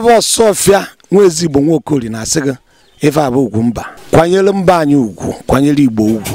ya bụ ọsọfịa nwa ezigbo nwaokori na-asị gị ife ugwu mba kwanyere mba anyị ugwu kwanyere igbo ugwu